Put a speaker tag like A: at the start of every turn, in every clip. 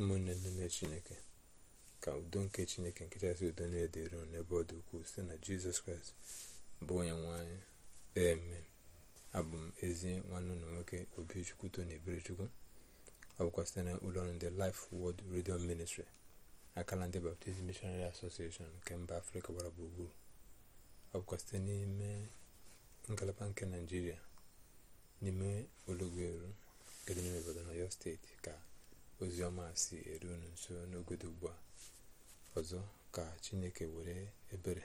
A: ụmụnne ndị nne chineke ka udo nke chineke nke chasị udo na-edere n'ebe ọ dị ukwuu site na jizọs kraịst bụ onye nwanyị eme abụ m ezi nwanne ụlọ nwoke obichukwu tony eberechukwu ọ bụkwa site na ụlọọrụ ndị life word redio ministry akala ndị baptist missionary association nke mba afrịka gbara gburugburu ọ bụkwa site n'ime ngalaba nke naijiria n'ime olugweru nke dị n'ime obodo na ọyọ steeti ka ozi ọma si eru unu nso n'ogodo ugbu a ọzọ ka chineke were ebere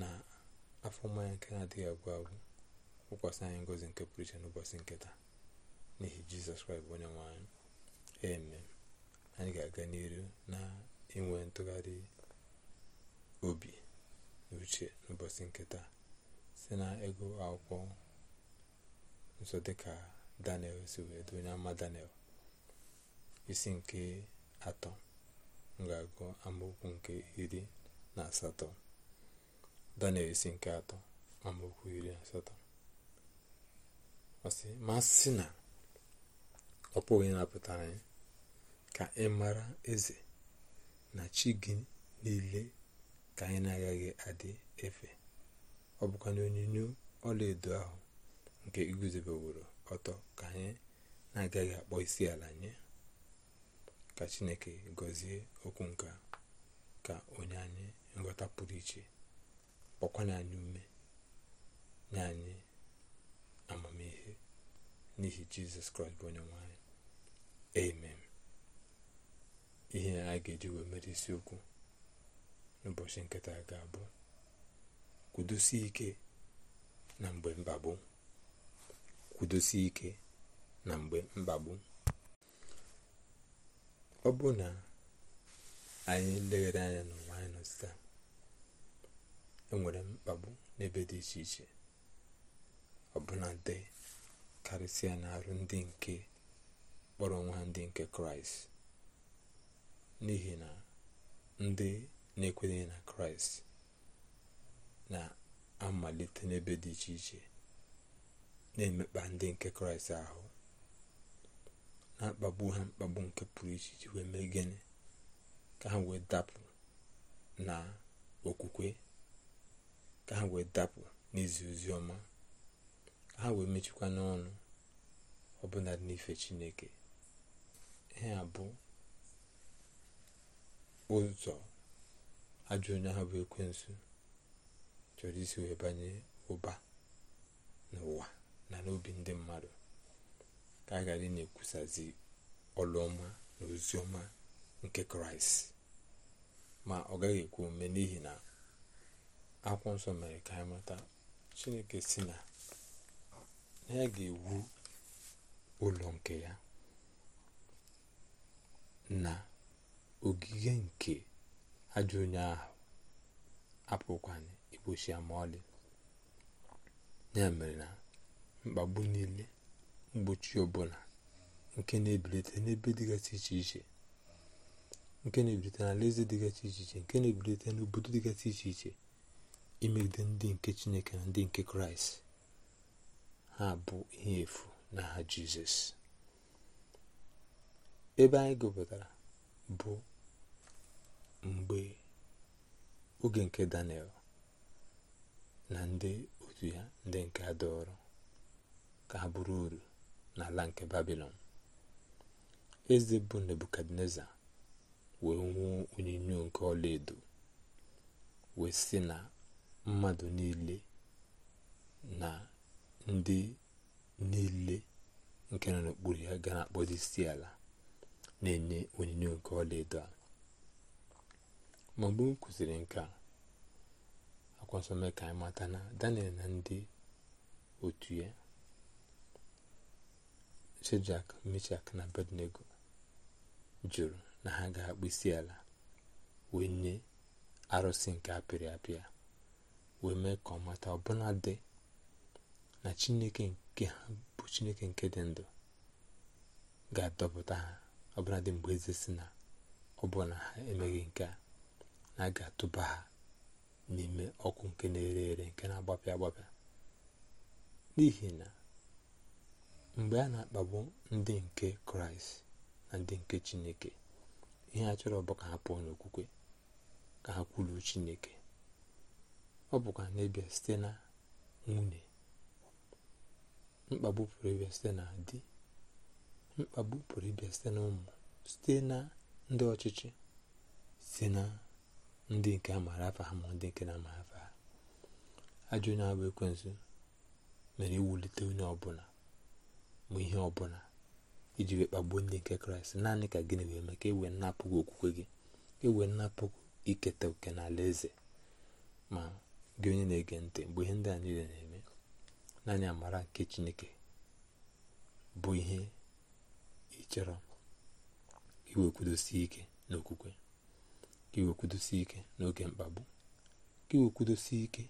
A: na afọ mmanya nke na-adịghị agwụ agwụ wụkwasị anyị ngozi nke pụrụ iche n'ụbọchị nketa n'ihi jizọs kraịst bụ onye nwanyị eme anyị ga-aga n'iru na inwe ntụgharị obi n'uche uche n'ụbọchị nketa si na ego akwụkwọ nso dịka daniel si wee dụ onye ama daniel isi nke atọ ga amaokwu nke iri na asatọ daniel isi nke atọ amaokwu iri na asatọ ọsị ma sị na ọ pụghị napụtara anyị ka ị mara eze na chi gị niile ka anyị na-agaghị adị efe ọ bụkwa na onyinyo ọlaedo ahụ nke iguzobeworo ọtọ ka anyị na-agaghị akpọ isi ala nye ka chineke gọzie okwu nka ka onye anyị nghọta pụrụ iche kpọkwanye anyị ume nye anyị amamihe n'ihi jizọs kraịst bụ onye nwanyị anyị amen ihe a ga-eji wee mere isiokwu n'ụbọchị nkịta ga-abụ kwudosie ike na mgbe mkpagbu kwudosie ike na mgbe mkpagbu ọ bụ na anyị leghere anya n'ụwa anyị nọ taa enwere mkpagbu n'ebe dị iche iche ọbụla dị karịsịa n'arụ ndị nke kpọrọ nwa ndị nke kraịst n'ihi na ndị na-ekwenyeghị na kraịst na-amalite n'ebe dị iche iche na-emekpa ndị nke kraịst ahụ na ha mkpagbu nke pụrụ iche iji wee mee gịnị ka ha wee dapụ na okwukwe ka ha wee dapụ n'izi ozi ọma ka ha wee mechikwa n'ọnụ ọbụla dị n'ife chineke ihe a bụ ụzọ ajọ onye ahụ bụ ekwensu chọrọ isi wee banye ụba n'ụwa na n'obi ndị mmadụ ka a na-ekwusazi ọlụ na oziọma nke kraịst ma ọ gaghị ekwu ome n'ihi na akwụkwọ nsọ mere ka anyị mata chineke si na ya ga-ewu ụlọ nke ya na ogige nke ajọ onye ahụ apụkwana igbochi ama ma ọlị ya mere na mkpagbu niile mgbochi ọbụla nke na-ebilite n'ebe dịgasị iche iche nke na-ebilite dịgasị iche iche nke na-ebilite n'obodo dịgasị iche iche imegide ndị nke chineke na ndị nke kraịst ha bụ ihe efu n'aha jizọs ebe anyị gụpụtara bụ mgbe oge nke daniel na ndị otu ya ndị nke adọrọ ka ha bụrụ uru n'ala nke babilon eze bụ nebukadneza wee nwụọ onyinyo nke ọlaedo wee sị na mmadụ niile na ndị niile nke nọ n'okpuru ya gara na-akpọzi ala na-enye onyinyo nke ọlaedo a ma mgbe m kwụsịrị nke a akwa ka anyị mata na daniel na ndị otu ya shedrak mechak na abednego jụrụ na ha ga-akpụ isi ala wee nye arụsị nke apịrị apịa wee mee ka ọ mata ọbụla dị na chineke nke ha bụ chineke nke dị ndụ ga-adọpụta ha ọbụla dị mgbe eze si na ọbụla ha emeghị nke a na a ga-atụba ha n'ime ọkụ nke na-ere ere nke na-agbapịa agbapịa n'ihi na mgbe a na-akpagbu ndị nke kraịst na ndị nke chineke ihe a chọrọ bụ ka ha pụọ n'okwukwe ka ha kwuru chineke ọ bụkwa na site na nwunye mkpagbu pụrụ ịbịa site na di mkpagbu pụrụ ịbịa site na ụmụ site na ndị ọchịchị site na ndị nke a afa ha ma ndị nke na-amaghị afa ha ajọ onye abụ ekwensu mere iwulite onye ọbụla mụ ihe ọbụla iji wee kpagbuo ndị nke kraịst naanị ka gịnị wee eme ka e wee napụghị okwukwe gị e wee nnapụghị iketa oke n'ala eze ma gị onye na-ege ntị mgbe ihe ndị a niile na-eme naanị amara nke chineke bụ ihe ịchọrọ iwekwudosi ike n'okwukwe ka iwekwudosi ike n'oge mkpagbu ka iwekwudosi ike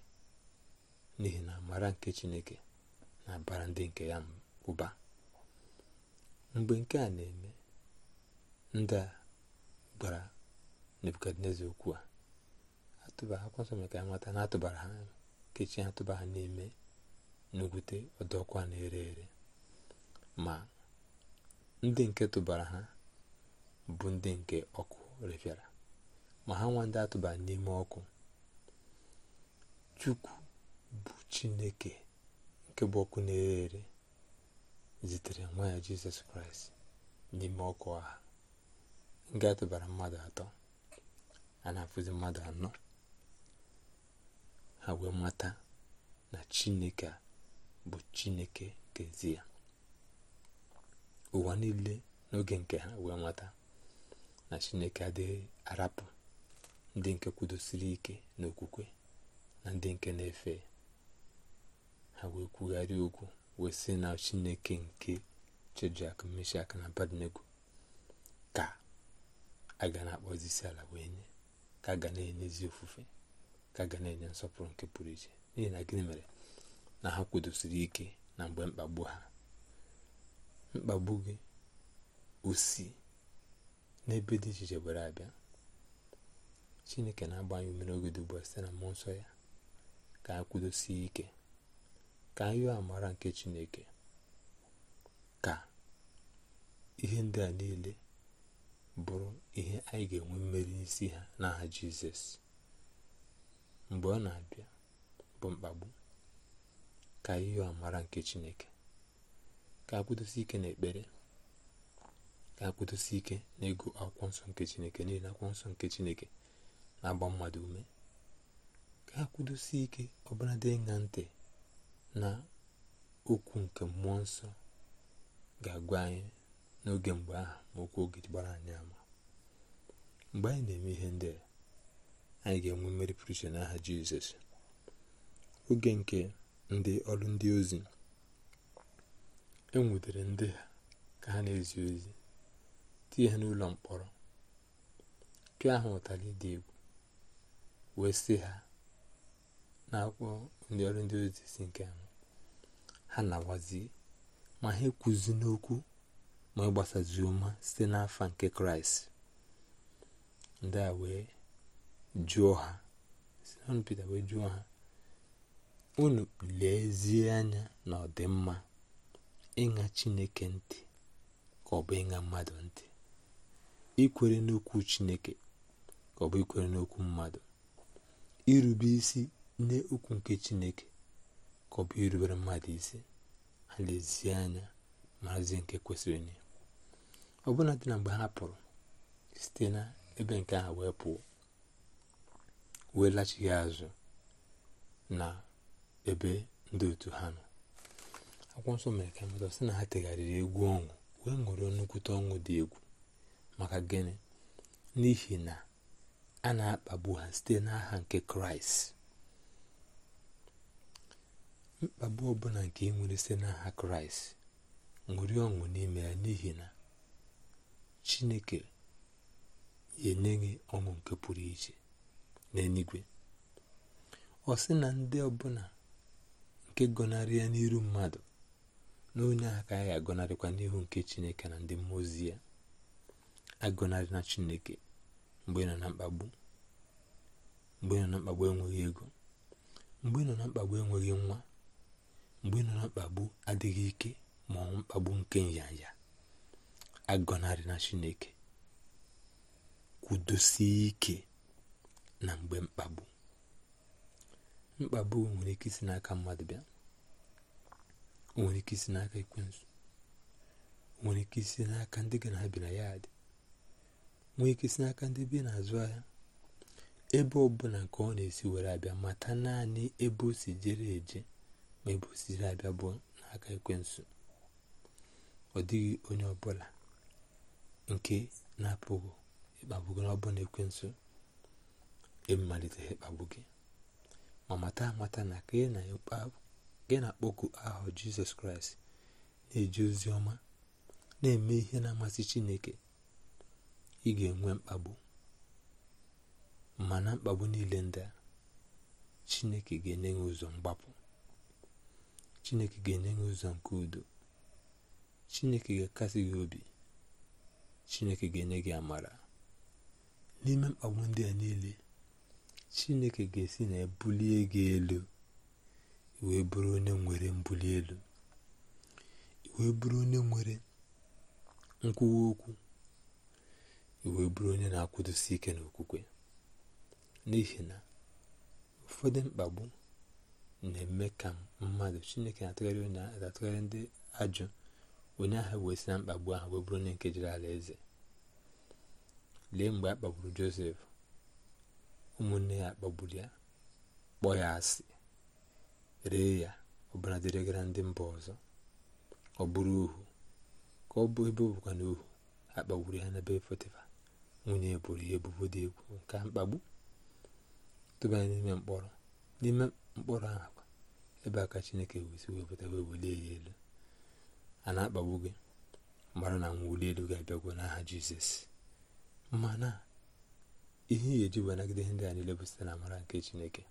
A: n'ihi na amara nke chineke na-abara ndị nke ya ụba mgbe nke a na-eme ndị a gbara nebukadneza okwu a atụbara akwụkwọ nsọ maka nwata na atụbara ha atụba ha ha n'ime n'ogwute ọdọkwa na-ere ere ma ndị nke tụbara ha bụ ndị nke ọkụ refịara ma ha nwa ndị atụbara n'ime ọkụ chukwu bụ chineke nke bụ ọkụ na-ere ere zitere nwa ya jizọs kraịst n'ime ọkụ agha nke atụbara mmadụ atọ a na-afụzi mmadụ anọ ha wee mata na chineke bụ chineke nkezi ya ụwa niile n'oge nke ha wee mata na chineke adịghị arapụ ndị nke kwudosiri ike n'okwukwe na ndị nke na-efe ha wee kwugharịa okwu wee na chineke nke chedrak meshak na abednego ka a ga na-akpọzi ala wee nye ka a ga na ezi ofufe ka a ga na-enye nsọpụrụ nke pụrụ iche n'ihi na gịnị mere na ha kwudosiri ike na mgbe mkpagbu ha mkpagbu gị osi n'ebe dị iche iche were abịa chineke na-agbanye ume oge dị site na mmụọ nsọ ya ka a kwudosie ike ka anyị amara nke chineke ka ihe ndị a niile bụrụ ihe anyị ga-enwe mmeri isi ha n'aha jizọs mgbe ọ na-abịa bụ mkpagbu ka anyị amara nke chineke ka akwụdosi ike n'ekpere ka akwụdosi ike n'egwu akwụkwọ nsọ nke chineke n'ihi na akwụkwọ nsọ nke chineke na-agba mmadụ ume ka akwụdosi ike ọbụla dị ntị na okwu nke mmụọ nsọ ga-agwa anyị n'oge mgbe ahụ ma okwu oge gbara anyị ama mgbe anyị na-eme ihe ndị a anyị ga-enwe mmeri pụrụ iche n'aha jizọs oge nke ndị ọrụ ndị ozi enwudere ndị ha ka ha na-ezi ozi tinye ha n'ụlọ mkpọrọ pịa ha ụtalị dị egwu wee sị ha na akwụkwọ ndị ọrụ ndị ozi si nke ha na-agwazi ma ha ekwuzi n'okwu ma ịgbasazi ụma site n'afa nke kraịst ndị a wee jụọ ha simon pete wee jụọ ha unu lezie anya na ọdịmma ịṅa chineke ntị ka ọ bụ ịṅa mmadụ ntị ikwere n'okwu chineke ka ọ bụ ikwere n'okwu mmadụ irube isi nne ukwu nke chineke ka ọ bụ irubere mmadụ isi ha lezie anya maazi nke kwesịrị ọ bụla dị na mgbe ha pụrụ site na ebe nke ha wee pụọ wee lachighị azụ na ebe ndị otu ha nọ akwụkwọ nsọ mere ka mata sị na ha tegharịrị egwu ọṅụ wee ṅụrịọ nnukwute ọṅụ dị egwu maka gịnị n'ihi na a na-akpagbu ha site n'aha nke kraịst mkpagbu ọbụla nke ị nwere site n'aha kraịst ṅụrie ọṅụ n'ime ya n'ihi na chineke enye gị ọṅụ nke pụrụ iche n'eluigwe ọ sị na ndị ọbụla nke gọnarị ya n'iru mmadụ na onye ahụ ya agọnarịkwa n'ihu nke chineke na ndị mmụọ ozi ya agọnarị na chineke mgbe ị nọ na mkpagbu mgbe ị nọ na mkpagbu enweghị ego mgbe ị nọ na mkpagbu enweghị nwa mgbe ị nọ na mkpagbu adịghị ike ma ọ mkpagbu nke nyanya agọnarị na chineke kwudosie ike na mgbe mkpagbu mkpagbu nwere ike isi n'aka mmadụ bịa nwere ike isi n'aka ekwensu nwere ike isi n'aka ndị ga na abịa na ya dị nwere ike isi n'aka ndị bi n'azụ ahịa ebe ọbụla nke ọ na-esi were abịa mata naanị ebe o si jere eje ma ebu osisi abịa bụ n'aka ekwensu ọ dịghị onye ọbụla nke na-apụghị ịkpagbu gị n'ọbụ na ekwensu emalitere ịkpagbu gị ma mata amata na ka gị na-akpọku aha jizọs kraịst na-eji ozi ọma na-eme ihe na-amasị chineke ị ga-enwe mkpagbu ma na mkpagbu niile ndị chineke ga-enye ụzọ mgbapụ chineke ga-enye gị ụzọ nke udo chineke ga-akasi gị obi chineke ga-enye gị amara n'ime mkpagbu ndị a niile chineke ga-esi na ebulie gị elu wee bụrụ onye nwere mbuli elu wee bụrụ onye nwere nkwuwa okwu wee bụrụ onye na-akwụdosi ike n'okwukwe n'ihi na ụfọdụ mkpagbu na-eme ka mmadụ chineke na-atụgharị ndị ajụ onye ahụ wee si na mkpagbu ahụ wee bụrụ onye nke jiri ala eze lee mgbe a kpagburu josef ụmụnne ya kpagburu ya kpọọ ya asị ree ya dịrị dịrịgara ndị mba ọzọ ọ bụrụ ohu ka ọ bụ ebe ọ na ohu akpagburu ya n'ebe fetifa nwunye bụrụ ya ebubo dị egwu nke mkpagbu tụbanye n'ime mkpọrọ n'ime mkpụrụ akwa ebe aka chineke wesi wepụta wee welie ya elu a na-akpagbu gị mara na mwuli elu ga-abịagwo n'aha jizọs mana ihe ihe eji wee ihe ndị a niile bụ site na amara nke chineke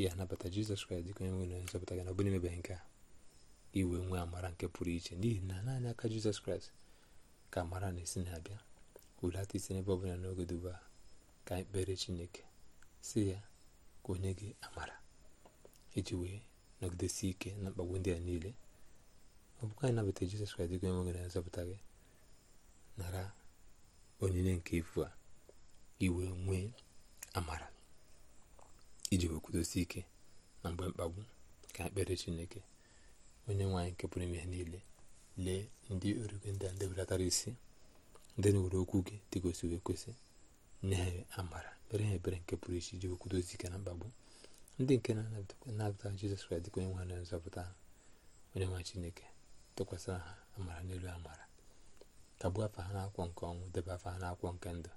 A: ya anabata jizọs kraịst dịka onye nwere nzọpụta gị na ọ bụrụ nke a iwe nwee amara nke pụrụ iche n'ihi na naanị aka jizọs kraịst ka amara na-esi na-abịa hulata isi n'ebe ọbụla n'oge duba ka anyị kpere chineke si ya ka onye gị amara iji wee nọgidesi ike na mkpagbu ndị a niile ọ bụkwa anyị nabata jizọs kraịst dịka onye gị na nzọpụta gị nara onyinye nke ifu a iwe nwee amara iji wee kwudosi ike na mgbe mkpagbu ka ekpere chineke onye nwaanyị nke pụrụ ime niile lee ndị ọrụ ndị a ndị belatara isi ndị na okwu gị dịgosi wee kwesị nye ha amara mere ha ebere nke pụrụ iche iji wee kwudosi ike na mkpagbu ndị nke na-anabata jizọs kraịst dịka onye nwe nzọpụta onye nwa chineke tụkwasịra ha amara n'elu amara kagbuo afa ha n'akwụkwọ nke ọnwụ debe afa ha n'akwụkwọ nke ndụ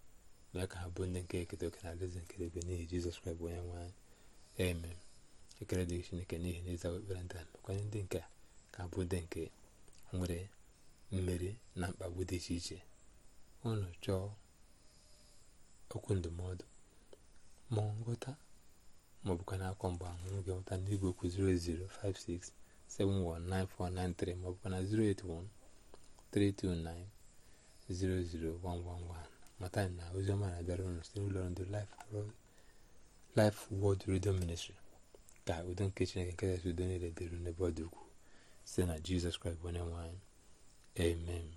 A: mee ka ha bụ ndị nke eketa oke na alaeze nke ebe n'ihi jizọs kraịst bụ onye nwe anyị eme ekele dịghị chineke n'ihi na ịza ekpere ndị mekwanye ndị nke ka bụ ndị nke nwere mmeri na mkpagbu dị iche iche ụnụ chọọ okwu ndụmọdụ ma nghọta maọbụkwa n'akwọ mgbe ahụrụ gị nweta ndị igwe okwu 00567194993 maọbụkwa na 08132900111 mata na oziọma na-abịara ụnụ site n'ụlọ ndị Life Word Radio Ministry ka udo nke Chineke nke kasị udo niile dịrị n'ebe ọ dị ukwuu site na Jizọs Kraịst onye nwe anyị amen